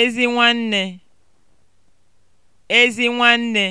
Ezi nwanne. Ezi nwanne